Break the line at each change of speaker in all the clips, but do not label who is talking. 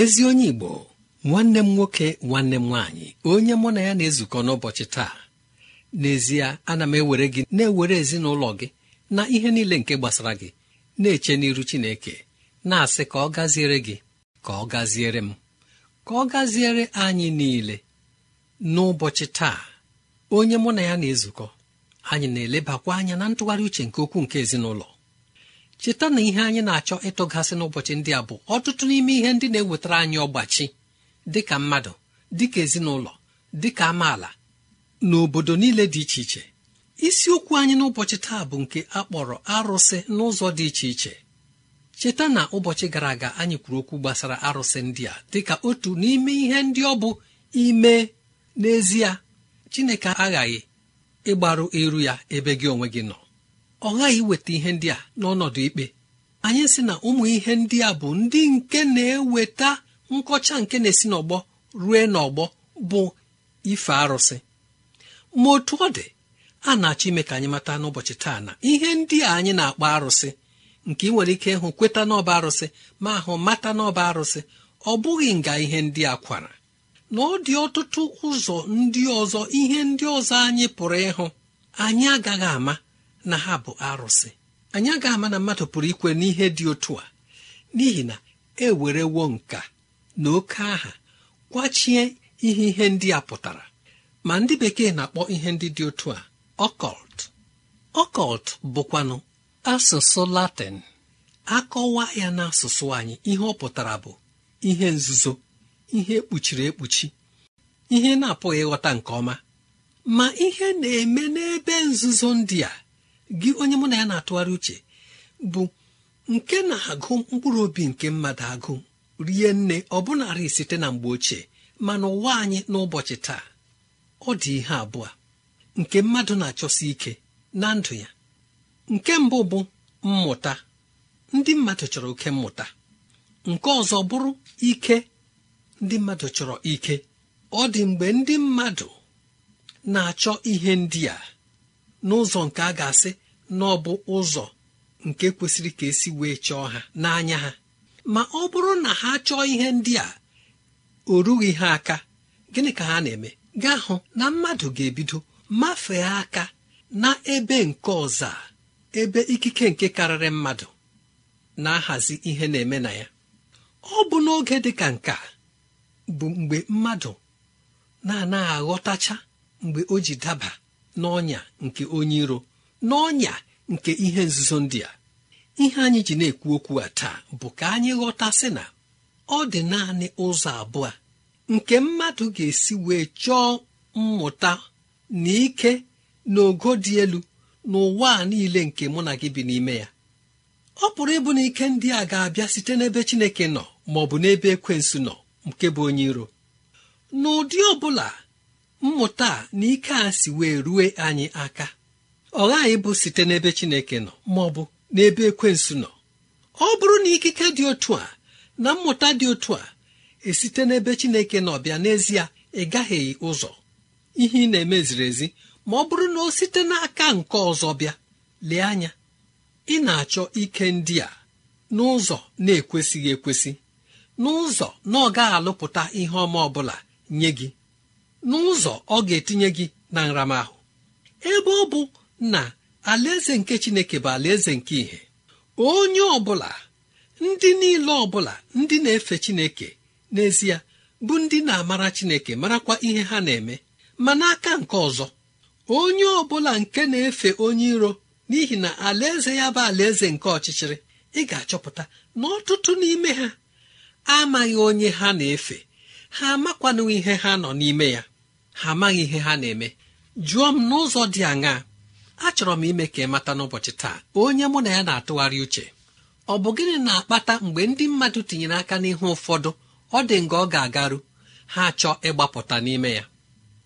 ezi onye igbo nwanne m nwoke nwanne m nwaanyị onye mụ na ya na-ezukọ n'ụbọchị taa n'ezie ana m ewere gị na-ewere ezinụlọ gị na ihe niile nke gbasara gị na-eche n'iru chineke na-asị ka ọ gaziere gị ka ọ gaziere m ka ọ gaziere anyị niile n'ụbọchị taa onye mụ na ya na-ezukọ anyị na-elebakwa anya na ntụgharị uche nke okwu nke ezinụlọ cheta na ihe anyị na-achọ ịtụghasị n'ụbọchị ndị a bụ ọtụtụ n'ime ihe ndị na-ewetara anyị ọgbachi dịka mmadụ dịka ezinụlọ dịka amaala na obodo niile dị iche iche isiokwu anyị n'ụbọchị taa bụ nke a kpọrọ arụsị n'ụzọ dị iche iche cheta na ụbọchị gara aga anyị kwuru okwu gbasara arụsị ndị a dịka otu n'ime ihe ndị ọ bụ ime n'ezie Chineke aghaghị ịgbaru iru ya ebe gị onwe gị nọ ọ ghaghị iweta ihe ndị a n'ọnọdụ ikpe anyị sị na ụmụ ihe ndị a bụ ndị nke na-eweta nkọcha nke na-esi n'ọgbọ rue n'ọgbọ bụ ife arụsị ma otu ọ dị a na-achọ ime ka anyị mata n'ụbọchị taa na ihe ndị a anyị na-akpọ arụsị nke ị nwere ike ịhụ kweta n'ọba arụsị ma ahụ mata n'ọba arụsị ọ bụghị nga ihe ndị a kwara na ọ dị ọtụtụ ụzọ ndị ọzọ ihe ndị ọzọ anyị pụrụ ịhụ anyị agaghị ama na ha bụ arụsị anyị agaghị ama na mmadụ pụrụ ikwe n'ihe dị otu a n'ihi na e werewo nka na oke aha kwachie ihe ihe ndị a pụtara ma ndị bekee na-akpọ ihe ndị dị otu a ọkọlt ọkọlt bụkwanụ asụsụ latịn akọwa ya na asụsụ anyị ihe ọ pụtara bụ ihe nzuzo ihe ekpuchiri ekpuchi ihe na-apụghị ịghọta nke ọma ma ihe na-eme n'ebe nzuzo ndị a gị onye mụ na ya na-atụgharị uche bụ nke na-agụ mkpụrụ obi nke mmadụ agụ rie nne bụnarị site na mgbe ochie mana ụwa anyị n'ụbọchị taa ọ dị ihe abụọ nke mmadụ na-achọsi ike na ndụ ya nke mbụ bụ mmụta ndị mmadụ chọrọ oke mmụta nke ọzọ bụrụ ike ndị mmadụ chọrọ ike ọ dị mgbe ndị mmadụ na-achọ ihe ndị a n'ụzọ nke a ga-asị na ọ bụ ụzọ nke kwesịrị ka esi wee chọọ ha n'anya ha ma ọ bụrụ na ha chọọ ihe ndị a o rughị ha aka gịnị ka ha na-eme gaa hụ na mmadụ ga-ebido mafee aka na ebe nke ọzọ ebe ikike nke karịrị mmadụ na-ahazi ihe na-eme na ya ọ bụ n'oge dị ka nke bụ mgbe mmadụ na-anaghị aghọtacha mgbe o ji daba n'ọnya nke onye iro n'ọnya nke ihe nzuzo ndị a ihe anyị ji na-ekwu okwu a taa bụ ka anyị ghọtasị na ọ dị naanị ụzọ abụọ nke mmadụ ga-esi wee chọọ mmụta na ike na dị elu n'ụwa a niile nke mụ na gị bi n'ime ya ọ pụrụ ịbụ na ike ndị a ga-abịa site n'ebe Chineke nọ ma bụ n'ebe ekwensu nọ nke bụ onye iro n'ụdị ọ mmụta na ike a si wee rue anyị aka ọ ghaghị bụ site n'ebe Chineke nọ ma ọ bụ n'ebe ekwensu nọ ọ bụrụ na ikike dị otu a na mmụta dị otu a esite n'ebe Chineke nọ bịa n'ezie ị ụzọ ihe ị na-eme ziri ezi ma ọ bụrụ na o site n'aka nke ọzọ bịa lee anya ị na-achọ ike ndị a n'ụzọ na-ekwesịghị ekwesị n'ụzọ na ọ gaghị alụpụta ihe ọma ọbụla nye gị n'ụzọ ọ ga-etinye gị na nramahụ ebe ọ bụ na alaeze nke chineke bụ alaeze nke ìhè onye ọbụla ndị niile ọbụla ndị na-efe chineke n'ezie bụ ndị na-amara chineke marakwa ihe ha na-eme ma n'aka nke ọzọ onye ọbụla nke na-efe onye iro n'ihi na alaeze ya bụ alaeze nke ọchịchịrị ị ga-achọpụta na ọtụtụ n'ime ha amaghị onye ha na-efe ha amakwanụ ihe ha nọ n'ime ya ha amaghị ihe ha na-eme jụọ m n'ụzọ dị aṅaa achọrọ m ime ka ị mata n'ụbọchị taa onye mụ na ya na-atụgharị uche ọ bụ gịnị na-akpata mgbe ndị mmadụ tinyere aka n'ihu ụfọdụ ọ dị nga ọ ga-agaru ha chọọ ịgbapụta n'ime ya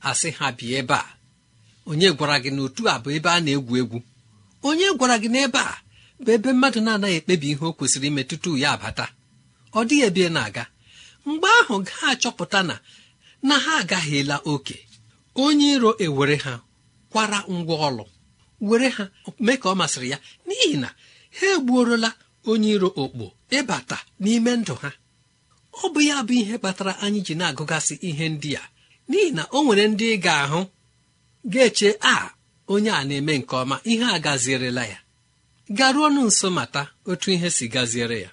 asị ha bi ebe a onye gwara gị na otu a bụ ebe a na-egwu egwu onye gwara gị n'ebe a bụ ebe mmadụ na-anaghị ekpebi ihe o kwesịrị ime tutu ya abata ọ dịghị ebe na-aga mgbe ahụ ga achọpụta na na ha agaghịla oke onye iro ewere ha kwara ngwa ọlụ were ha mee ka ọ masịrị ya n'ihi na ha egbuorola onye iro okpo ịbata n'ime ndụ ha ọ bụ ya bụ ihe kpatara anyị ji na-agụgasị ihe ndị a n'ihi na o nwere ndị ị ga-ahụ ga-eche a onye a na-eme nke ọma ihe a gazierela ya garuonụ nso mata otu ihe si gaziere ya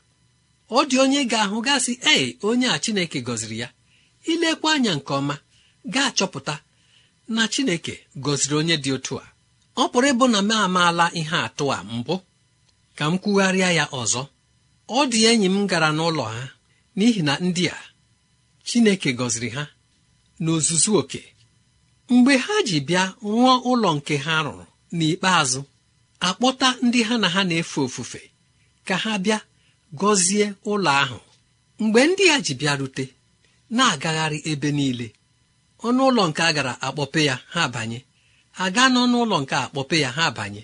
ọ dị onye ga-ahụ gasị ee onye a Chineke gọziri ya ilekwa anya nke ọma ga-achọpụta na chineke gọziri onye dị otu a ọ pụrụ ịbụ na m amaala ihe atụ a mbụ ka m kwugharịa ya ọzọ ọ dị enyi m gara n'ụlọ ha n'ihi na ndị a chineke gọziri ha n'ozuzu oke mgbe ha ji bịa rụọ ụlọ nke ha rụrụ n'ikpeazụ akpọta ndị ha na ha na-efe ofufe ka ha bịa gọzie ụlọ ahụ mgbe ndị a ji bịa rute na-agagharị ebe niile ọnụ ụlọ nke a gara akpọpe ya ha abanye aga gaa n'ọnụ ụlọ nke akpọpe ya ha abanye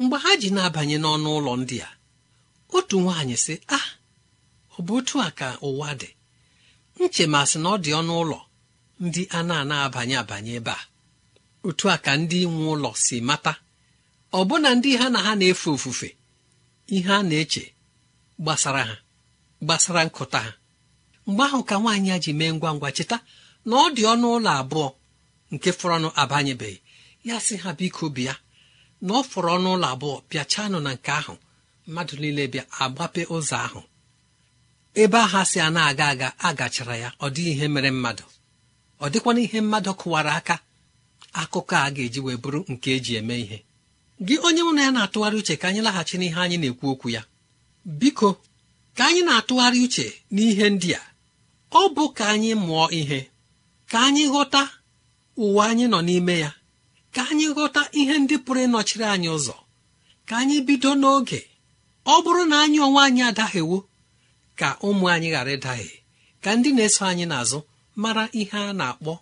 mgbe ha ji na-abanye n'ọnụ ụlọ ndị a otu nwaanyị si ah ọ bụ otu a ka ụwa dị nchemasị na ọ dị ọnụ ụlọ ndị a na-ana abanye abanye ebe a otu a ka ndị nwe ụlọ si mata ọbụna ndị ha na ha na-efe ofufe ihe a na-eche gbasara ha gbasara nkụta ha mgbe ahụ ka nwaanyị ya ji mee ngwa ngwa cheta na ọ dị ọnụ ụlọ abụọ nke fọrọnụ abanyebeghị ya sị ha biko bịa na ọ fọrọ ọnụ ụlọ abụọ bịachanụ na nke ahụ mmadụ niile bịa agbape ụzọ ahụ ebe aha si a na-aga aga a gachara ya ọ dị ihe mere mmadụ ọ dịkwana ihe mmadụ kụwara aka akụkọ a ga-eji wee bụrụ nke eji eme ihe gị onye mụ na ya na-atụgharị uche ka anyị laghachi n'ihe anyị na-ekwu okwu ya biko ka anyị na-atụgharị uche n'ihe ndị a ọ bụ ka anyị mụọ ihe ka anyị ghọta ụwa anyị nọ n'ime ya ka anyị ghọta ihe ndị pụrụ ịnọchiri anyị ụzọ ka anyị bido n'oge ọ bụrụ na anyị onwe anyị adaghịwo ka ụmụ anyị ghara ịdahie ka ndị na-eso anyị n'azụ mara ihe a na-akpọ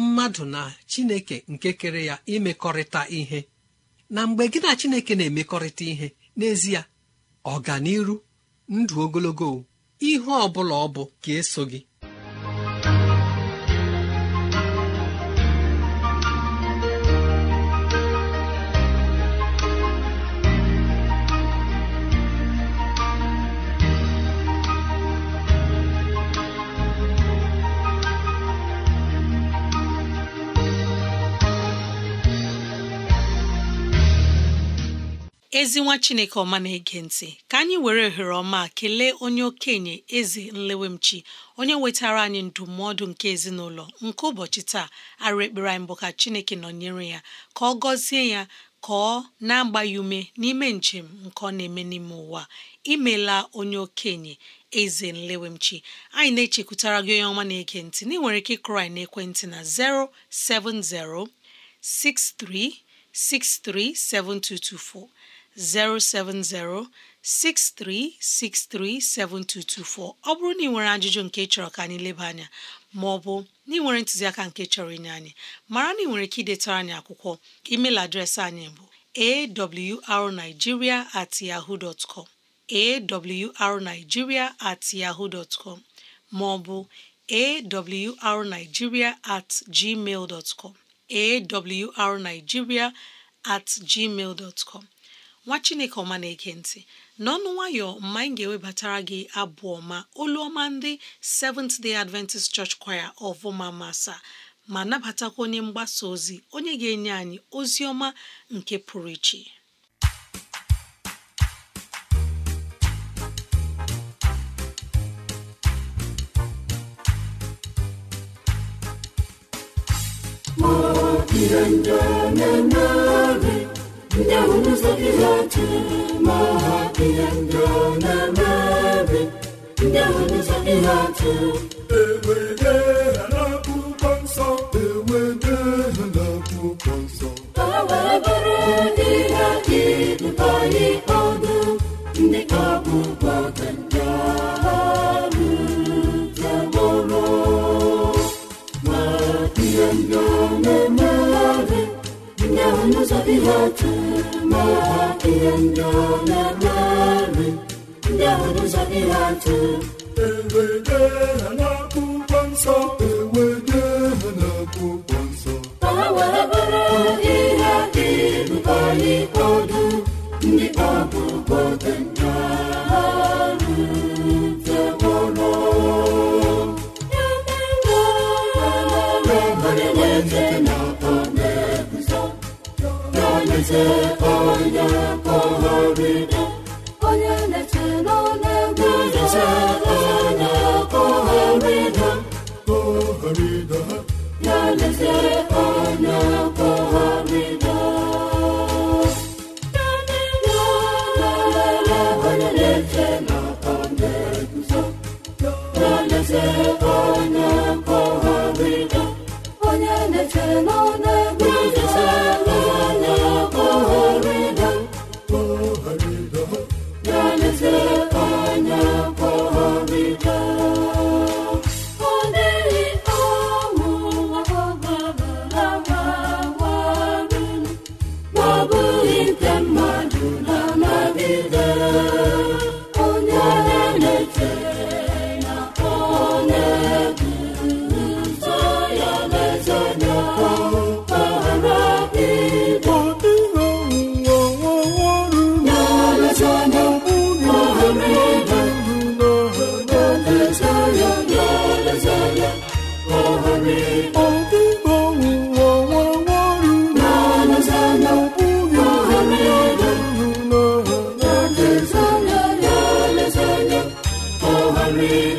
mmadụ na chineke nke kere ya imekọrịta ihe na mgbe gị na chineke na-emekọrịta ihe n'ezie ọganiru ndụ ogologo ihe ọ bụla ọ bụ ga-eso gị
ezi nwa chineke ọma na-ege ntị ka anyị were ohere ọma kelee onye okenye eze nlewemchi onye wetara anyị ndụmọdụ nke ezinụlọ nke ụbọchị taa arụ ekpere anyị bụ ka chineke nọnyere ya ka ọ gọzie ya ka ọ na-agba ume n'ime njem nke ọ na-eme n'ime ụwa imela onye okenye eze nlewemchi anyị na-echekwutara gị onye ọma na-ege ntị na ị nwere ike ịkụrụ anyị n'ekwentị na 070 6363 7224 070 7224 ọ bụrụ na ị nwere ajụjụ nke chọrọ ka anyị leba anya ma ọ bụ na ị nwere ntụziaka nke chọrọ inye anyị mara na ị nwere ike idetara anyị akwụkwọ email adreesị anyị bụ awrnigeria at com ma ọ bụ awrnigeria at gmail nwa chineke ọma na-ege ntị n'ọnụ nwayọ mma anyị ga-ewebatara gị abụ ọma olu ọma ndị Seventh Day Adventist Church Choir ọvụma masa ma nabatakwa onye mgbasa ozi onye ga-enye anyị ozi ọma nke pụrụ iche
ndị ahụ nụzọgide otu ma ha ihe ndị ọ na-eme ndị ahụ nụzọgide otu ewerede ihe otu n'ụwa ihe ndị ọ na-emeri ahụ n'ụzọ ihe atụ ewede nsọ ewede n'akwụkwọ ihe dị ndị bụ Jesus. Mary.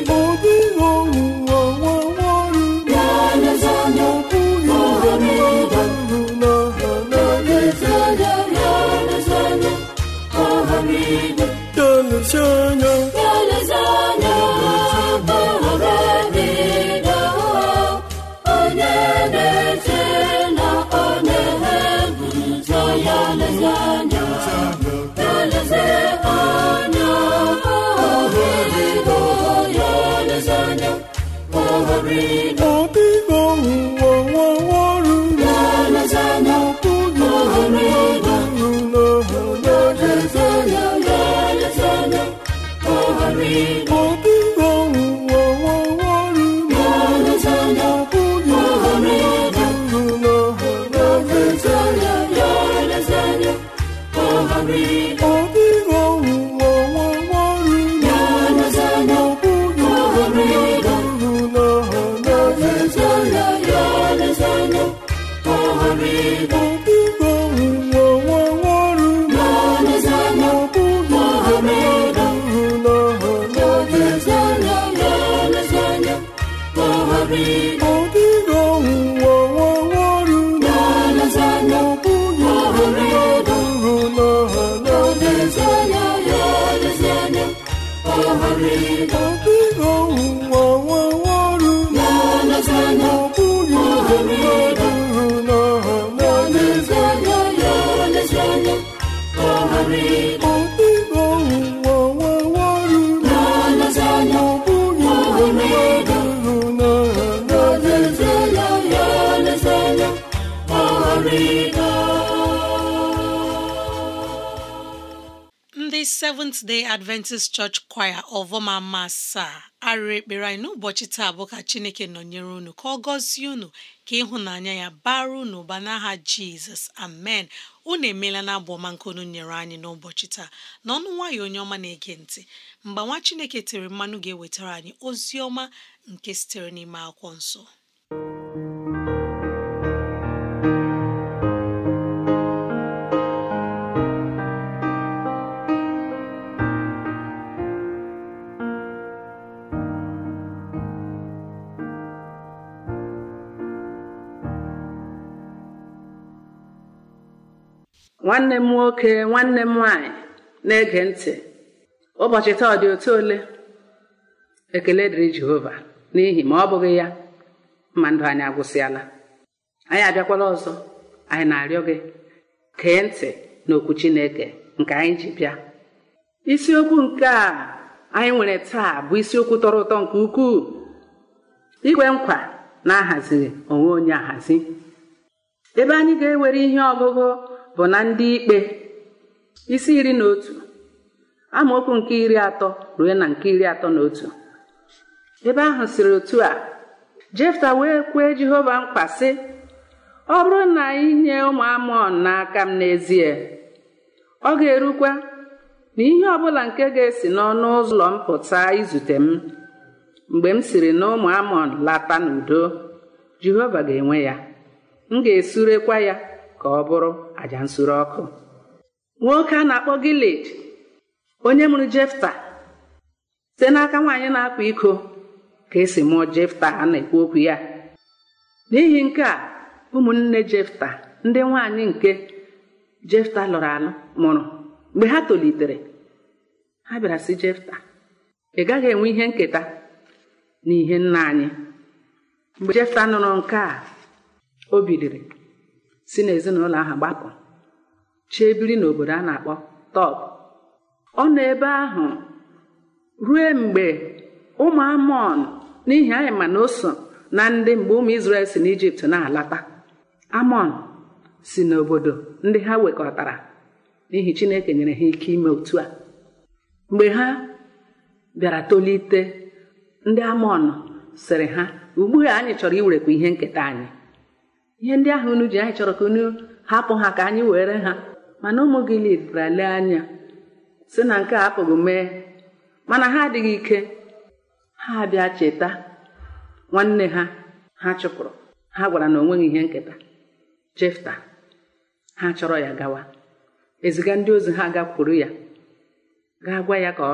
Maria.
omega
Seventh Day Adventist Church Choir ọvọma masaa arịrị ekpere anyị n'ụbọchị taa bụ ka Chineke nọnyere unu ka ọ gọzie unu ka ịhụnanya ya bara unu ụba n'aha Jizọs amen unu emeela na abụ nke nyere anyị n'ụbọchị taa n'ọnụ nwayọ onye ọma na-ege ntị mgbe nwa Chineke tere mmanụ ga-ewetara anyị ozi ọma nke
sitere n'ime akwụkwọ nsọ
nwanne m nwoke nwanne m nwanyị na-ege ntị ụbọchị taa ọ dị otu ole ekele dịrị jehova n'ihi ma ọ bụghị ya ma ndụ anyị agwụsịala anyị abịakwala ọzọ anyị na-arịọ gị kee ntị n'okwu chineke nke anyị ji bịa isiokwu nke a anyị nwere taa bụ isiokwu tọrọ ụtọ nke ukwuu igwe nkwa na ahaziri onwe onye ahazi ebe anyị ga-ewere ihe ọgụgụ bụ na ndị ikpe isi iri na otu amaokwu nke iri atọ ruo na nke iri atọ na otu ebe ahụ siri otu a jefta wee kwee jehova mkpa sị ọ bụrụ na anyị nye ụmụ amọn n'aka m n'ezie ọ ga-erukwa na ihe ọbụla nke ga-esi n'ọnụ ụlọ mpụta izute m mgbe m siri na ụmụ amọn lata n'udo jehova ga-enwe ya m ga-esurekwa ya ka ọ bụrụ àjà nsure ọkụ nwoke a na-akpọ gilad onye mụrụ jefta site n'aka nwaanyị na-akwa iko ka esi mụọ jefta a na-ekwu okwu ya n'ihi nke a ụmụnne jefta ndị nwaanyị nke jefta lụrụ alụ mụrụ mgbe ha tolitere ha bịara si jefta ị gaghị enwe ihe nketa n'ihe nna anyị mgbe jefta nụrụ nke a o biliri si n'ezinụlọ ahụ gbapụ chee biri n'obodo a na-akpọ Tọb ọ nọ ebe ahụ rue mgbe ụmụ Amọn n'ihi anyị ma na oso na ndị mgbe ụmụ Izrel si n'Ijipt na-alata Amọn si n'obodo ndị ha wekọtara n'ihi Chineke nyere ha ike ime otu a mgbe ha bịara tolite ndị Amọn sịrị ha ugbu anyị chọrọ iwerekwa ihe nketa anyị ihe ndị ahụ unu ji anyị chọrọ ka unu hapụ ha ka anyị were ha mana ụmụ gị lidbara lee anya sị na nke a apụghị mee mana ha adịghị ike ha bịa cheta nwanne ha ha chụpụrụ ha gwara na onweghị ihe nketa Jefta ha chọrọ ya gawa eziga ndị ozi ha gakwuru ya ga gwa ya ka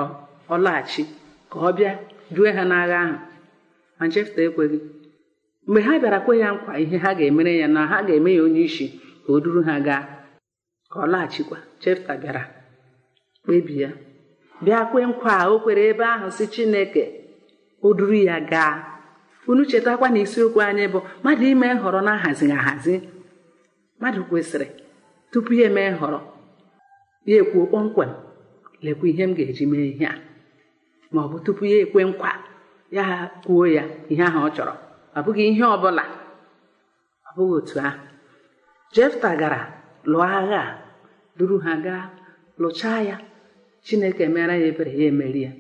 ọ laghachi ka ọ bịa due ha n'agha ahụ ma Jefta ekweghị mgbe ha bịara kwe ya nkwa ihe ha ga-emere ya na ha ga-eme ya onye isi ka o duru ha gaa ka ọ laghachikwa Chefta bịara kpebi ya bịa kwe nkwa o kwere ebe ahụ si Chineke o duru ya gaa unu chetakwa na isiokwu anyị bụ mmadụ ime nhọrọ na-ahazighị ahazi mmadụ kwesịrị tupu ya eme nhọrọ ya ekwuo kpọmkwem lekwa ihe m ga-eji mee ihe a ma ọ bụ tupu ya ekwe nkwa ya kwuo ya ihe ahụ ọ chọrọ ọ bụghị ihe ọ bụla ọ bụghị otu ahụ jefta gara lụọ agha a duru ha gaa lụchaa ya chineke mere ya ebere ya emeri ya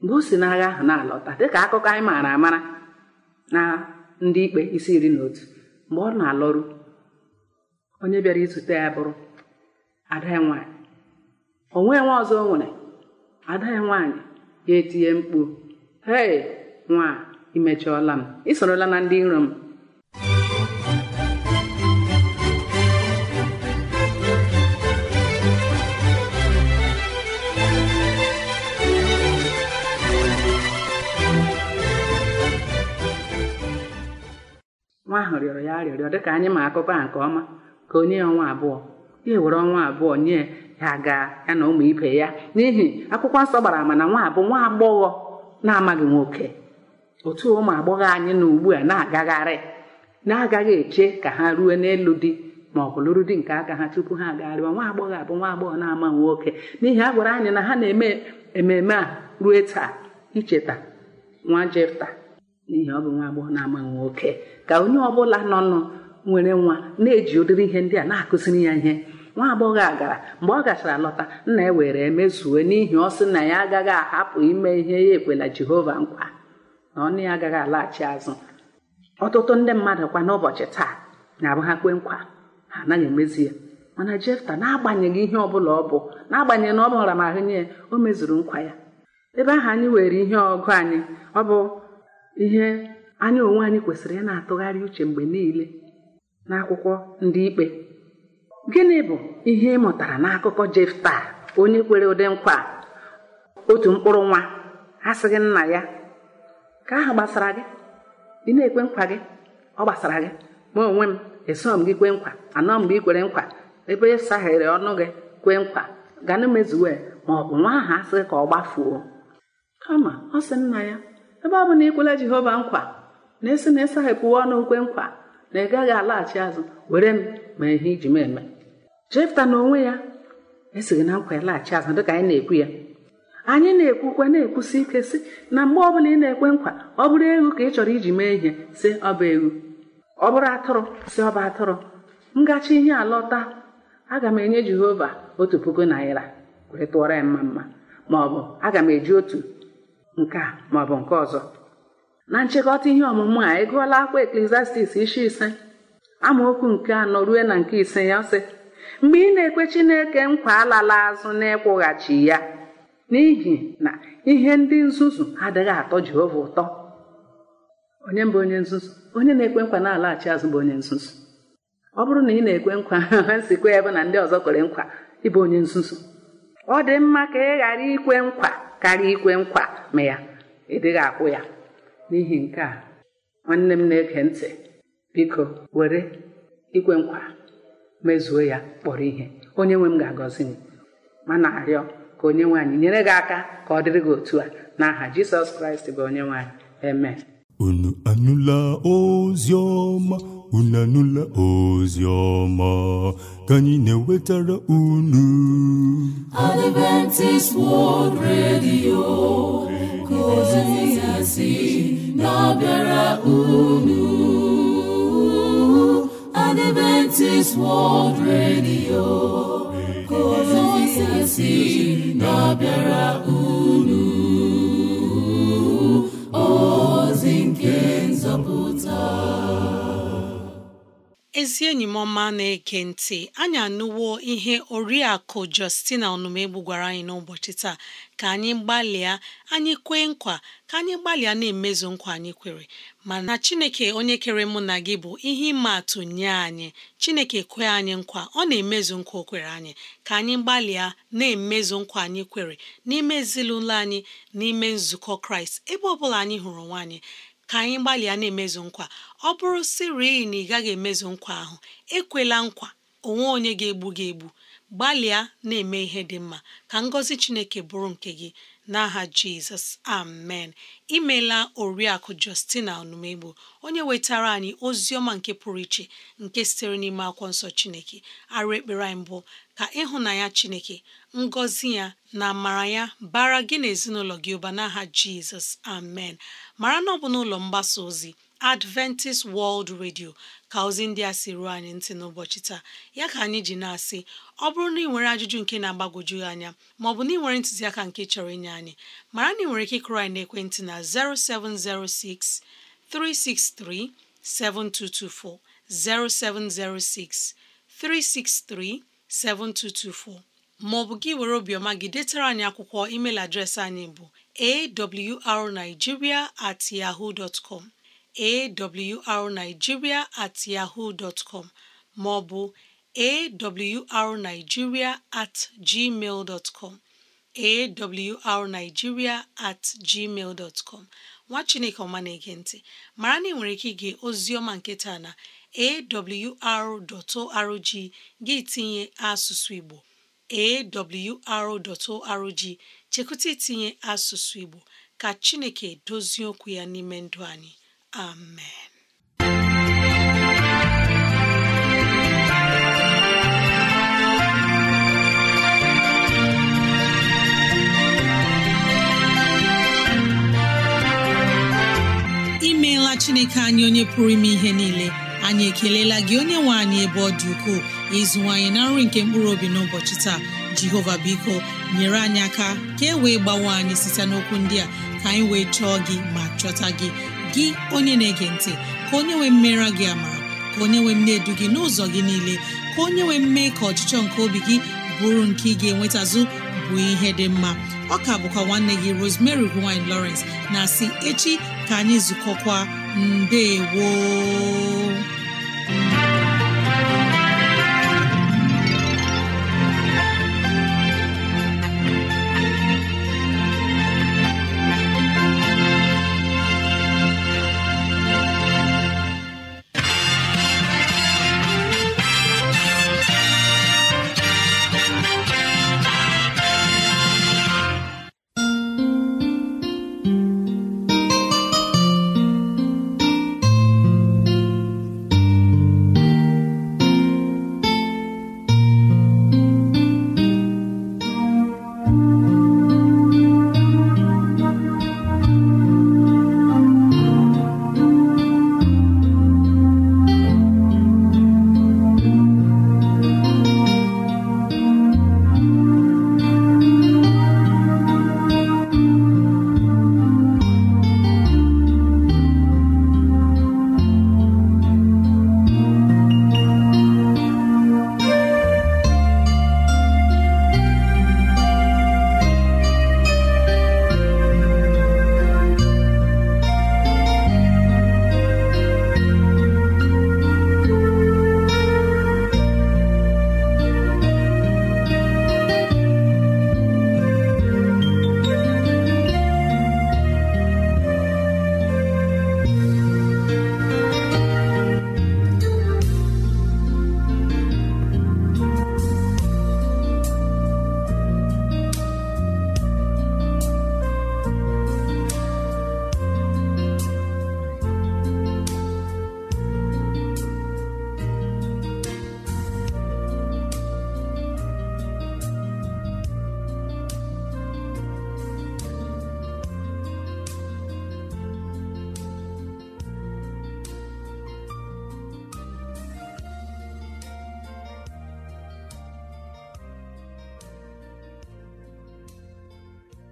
mgbe o si n'agha ahụ na-alọta dịka akụkọ anyị maara amara na ndị ikpe isi iri na otu mgbe ọ na-alọrụ onye bịara izute ya bụrụ ada onwe nwa ọzọ nwere ada ya nwaanyị ya etinye mkpu hei nwa imechiọla m isorola na ndị iro m nwa ahụ rịọrọ ya dị ka anyị ma akụkọ a nke ọma ka onye ya ọnwa abụọ ya nwere ọnwa abụọ nye ya ga ya na ụmụ ibe ya n'ihi akwụkwọ nsọ gbara ama na nwa abụ nwa agbọghọ na-amaghị nwoke otu ụmụ agbọghọ anyị na ugbu a na-agagharị na-agaghị eche ka ha ruo n'elu di ma ọ bụ lụrụ di nke aka ha tupu ha agagharịwa nwa agbọghọ abụ nwa agbọghọ na-ama nwoke n'ihi a gwara anyị na ha na-eme ememe a ruo taa icheta nwa jefta n'ihi ọ bụ nwa agbọghọ na-ama nwoke ka onye ọbụla nọ nọ nwere nwa na-eji ụdịrị ihe ndị a na-akụziri ya ihe nwa agbọghọ a gara mgbe ọ gachara lọta nna ya were emezue n'ihi ọ sị na ya agaghị ahapụ ime ihe ya ekwela jehova nkwa na ọnụ ya agaghị alaghachi azụ ọtụtụ ndị mmadụ kwa n'ụbọchị taa na-abụ ha kwe nkwa ha anaghị emezi ya mana jefta na-agbanyeghị ihe ọbụla ọ bụ na-agbanyeghị na ọ mụra m ahụ nye ya o mezuru nkwa ya ebe ahụ anyị were ihe ọgụ anyị ọ bụ ihe anyị onwe anyị kwesịrị ị na-atụgharị uche mgbe niile n'akwụkwọ ndị ikpe gịnị bụ ihe ị mụtara n'akụkọ jefta onye kwere ụdị nkwa otu mkpụrụ nwa asịghị nna ya ka ahụ gbasara gị ị na-ekwe nkwa gị ọ gbasara gị ma onwe m eso m gị kwee nkwa anọ mgbe ị kwere nkwa ebe ịsaghere ọnụ gị kwee nkwa ganụ mezuwe ma ọ bụ nwa ahụ asịghị ka ọ gbafuo kama ọ sị nna ya ebe ọ bụ na ikwela jehova nkwa na-esi na ịsaghepụwa ọnụ kwe nkwa na ị gaghị alaghachi azụ were m ma ihe iji m eme jefta na onwe ya esighị na nkwa laghachi azụ dịka anyị na-ekwu ya anyị na-ekwukwe na-ekwusi ike sị na mgbe ọbụla ị na-ekwe nkwa ọ bụrụ ewu ka ị chọrọ iji mee ihe sị ọ bụ ewu, ọ bụrụ atụrụ sị ọ bụ atụrụ ngachi ihe alọta aga m enye jehova otu puku naira wee tụọrọ ya mma mma ma ọ bụ aga m eji otu nke a ma ọ bụ nke ọzọ na nchịkọta ihe ọmụmụ a ị e gụọla akwa eklesiastis isi ise amaokwu nke anọ ruo na nke ise ya sị mgbe ị na-ekwe chineke nkwa alala azụ na ịkwụghachi ya n'ihi na ihe ndị nzuzu adịghị atọ Jehova ụtọ onye mbụ onye nzuzu onye na-ekwe nkwa na-alaghachi azụ bụ onye nzuzu ọ bụrụ na ị na-ekwe nkwa ha sikwa ebe na ndị ọzọ kwere nkwa ịbụ onye nzuzu ọ dị mma ka ị ghara ikwe nkwa karịa ikwe nkwa ma ya ị dịghị akwụ ya n'ihi nke a nwanne m na eke ntị biko were ikwe nkwa mezuo ya kpọrọ ihe onye nwe m ga-agọzi m ma na-arịọ ka onye nwaanyị nyere gị aka ka ọ dịrị gị otu a n'aha jisọs kraịst bụ onye nwaanyị eme
unu anụla ozi ọma unu anụla ozi ọma ka anyị na-ewetara unu Adventist World Radio ka ozi si na-abịara unu Adventist World Radio si na-abịara unu ozi nke
nzọpụta ezi enyi m ọma na-eke ntị anyị anụwo ihe oriakụ Justina ọnụmegbu gwara anyị n'ụbọchị taa ka anyị gbalịa anyị kwee nkwa ka anyị gbalịa na-emezu nkwa anyị kwere mana chineke onye kere mụ na gị bụ ihe ịma atụ nye anyị chineke kwe anyị nkwa ọ na-emezu nkwa o kwere anyị ka anyị gbalịa na-emezu nkwa anyị kwere n'ime ezinụlọ anyị n'ime nzukọ kraịst ebe ọ bụla anyị hụrụ nwaanyị ka anyị gbalịa na-emezu nkwa ọ bụrụ siri na ị gaghị emezu nkwa ahụ ekwela nkwa onwe onye ga-egbu gị egbu gbalịa na-eme ihe dị mma ka ngọzi chineke bụrụ nke gị n'aha jizọs amen imela oriakụ justina onumegbo onye wetara anyị ozi ọma nke pụrụ iche nke sitere n'ime akwụkwọ nsọ chineke arụ ekpere anyị mbụ ka ịhụnanya chineke ngọzi ya na amara ya bara gị na ezinụlọ gị ụba n'aha jizọs amen mara na ọ n'ụlọ mgbasa ozi Adventist World Radio ka ozi ndị a si ruo anyị ntị n'ụbọchị taa ya ka anyị ji na-asị ọ bụrụ na ị nwere ajụjụ nke na-agbagwoju anya maọbụ na ị nwere ntụziaka nke chọrọ inye anyị mara na ị nwere ike ịkụrụ anyị n'ekwentị na 0706 363 7224 0706 363 7224 maọbụ gị were obiọma gị detara anyị akwụkwọ email adreesị anyị bụ awrnigeria at yahoo dot com awrnigeria at yahoo dot com ma ọ bụ awrnigeria at gmail dot com at gmail dot nwa chineke ọma na-ege ntị mara na ị nwere ike ige ozioma ọma na awr.org gị tinye asụsụ Igbo awr.org chekwụta itinye asụsụ Igbo ka chineke dozie okwu ya n'ime ndụ anyị Amen. imeela chineke anyị onye pụrụ ime ihe niile anyị ekelela gị onye nwe anyị ebe ọ dị ukwuu ukoo ịzụwanyị na nri nke mkpụrụ obi n'ụbọchị taa jehova biko nyere anyị aka ka e wee gbawe anyị site n'okwu ndị a ka anyị wee chọọ gị ma chọta gị gị onye na-ege ntị ka onye nwee mmera gị ama ka onye nwee mne edu gị n'ụzọ gị niile ka onye nwee mme ka ọchịchọ nke obi gị bụrụ nke ị ga-enwetazụ bụ ihe dị mma ọka bụkwa nwanne gị Rosemary gine Lawrence na si echi ka anyị zukọkwa
mbe woo